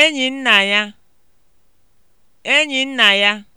enyi nna ya enyi nna ya